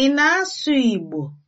Ị na-asụ Igbo?